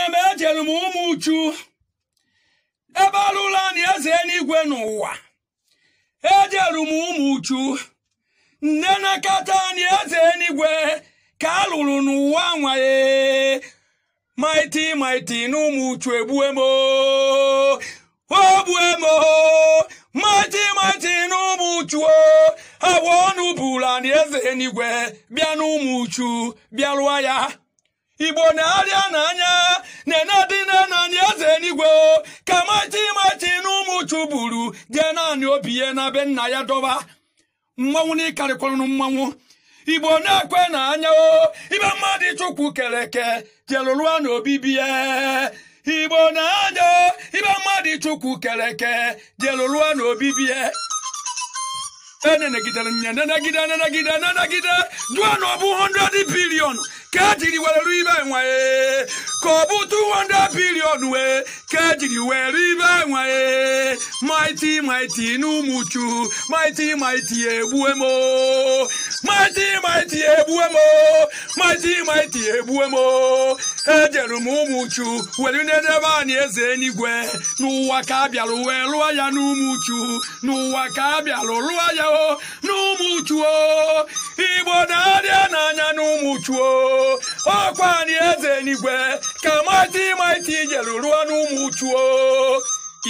nne m e ejere m ụmụ uchu ebe alụla na eze eluigwe n'ụwa ejere m ụmụ uchu nne nakata na eze eluigwe ka alụrụ n'ụwa nwaye maiti maiti n'ụmụ ụmụ uchu egbue m ogbue m maiti maiti na ụmụ uchu agwa ọnụ bụla na eze eluigwe bịa n'ụmụ uchu bịa lụọ ya igbo na-arịa n'anya na-enedina naanị eze eluigwe ka machi machi na ụmụ chuburu jee naanị obi ya na be nna ya dọba mmanwụ na ịkarịkwarụ mmanwụ igbo na-ekwe n'anya o ibe mmadụ chukwu kere eke jelụrụa na obibi ya igbo na-anya ibe mmadụ chukwu kere eke jelụrụa na obibi ya enenegidere nya nenegide nenegide nenegide jụọ na ọ bụ 100 bilion kejiri were ibe nwe ka ọ bụ 200 billion wee kejiri were ibe nwe mighty maiti n'ụmụchu mighty mighty ebuemo. maazị maiti egbue m ejere m ụmụ uchu were n'ebe anyị eze enigwe n'ụwa ka a bịalụ wee lụọ ya n'ụmụ uchu n'ụwa ka a bịalụ lụọ ya o n'ụmụ igbo na-adịa n'anya n'ụmụ uchu o ọkwa anyị eze enigwe ka maazị maiti jere rụọ n'ụmụ uchu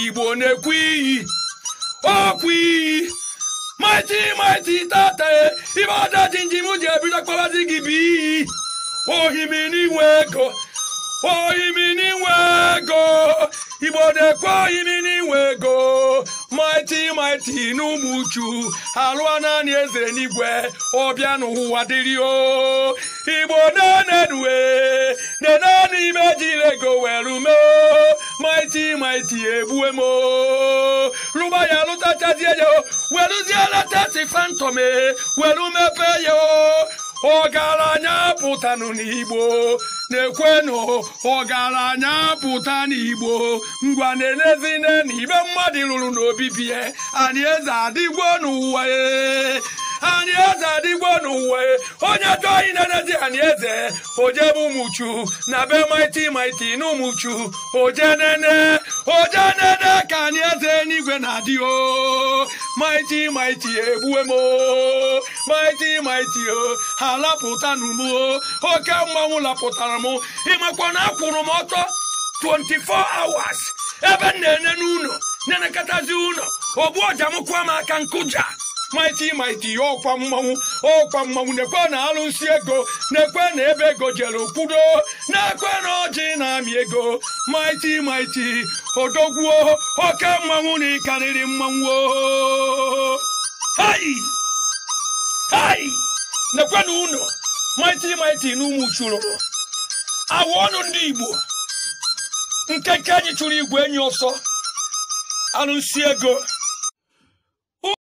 igbo na-ekwu iyi ọkwa iyi mighty mighty tate ibada jinji mu je bi dakpa lati gibi ohimi ni weko ohimi ni weko ibode ko ohimi ni weko mighty mighty no uchu alụọ naanị eze n'igwe ọbịa n'ụwa dịrị o igbo na-enedue nenanị ime jire go welu mee mighty mighty ebuemo. m lụba ya lụtachazie ya o weluzie leta si fantom e, welu mepee ya ọgaranya nụ n'igbo na-ekwenụ ọgaranya pụta n'igbo ngwa na-elezine na ibe mmadụ lụrụ n'obibi ya e, anyị eze adịgbo n'ụwa e, anyị eze adịgbo n'ụwa e, onye chọọ inenezi anyị eze ojebe ụmụchu na be maiti maiti na ụmụchu ojenene ojenene ka anyị eze n'igwe na-adị o mighty mighty egbuwe mo o mighty mighty o oh, ha lapụta m o oh, oke mmanwụ lapụtara m ịmakwa na akwụrụ m ọtọ 24 hours ebe m na-ene n'ụlọ na-enekọtazi ụlọ ogbu ọja m aka nkụja maiti maiti ọkwa oh, mmanwụ ọkwa oh, mmanwụ na-ekwe na alụsị ego n'ekwe na ebe ego jere kwudo n'ekwe na ọjị na-amị ego maiti maiti odogwuo oke mmanwụ na ịkarịrị mmanwụ oh, hai hai nekwe na ụlọ maiti maiti na ụmụ chụrụ awa ọnụ ndị igbo Nkeke anyị chụrụ igwe enyi ọsọ alụsị ego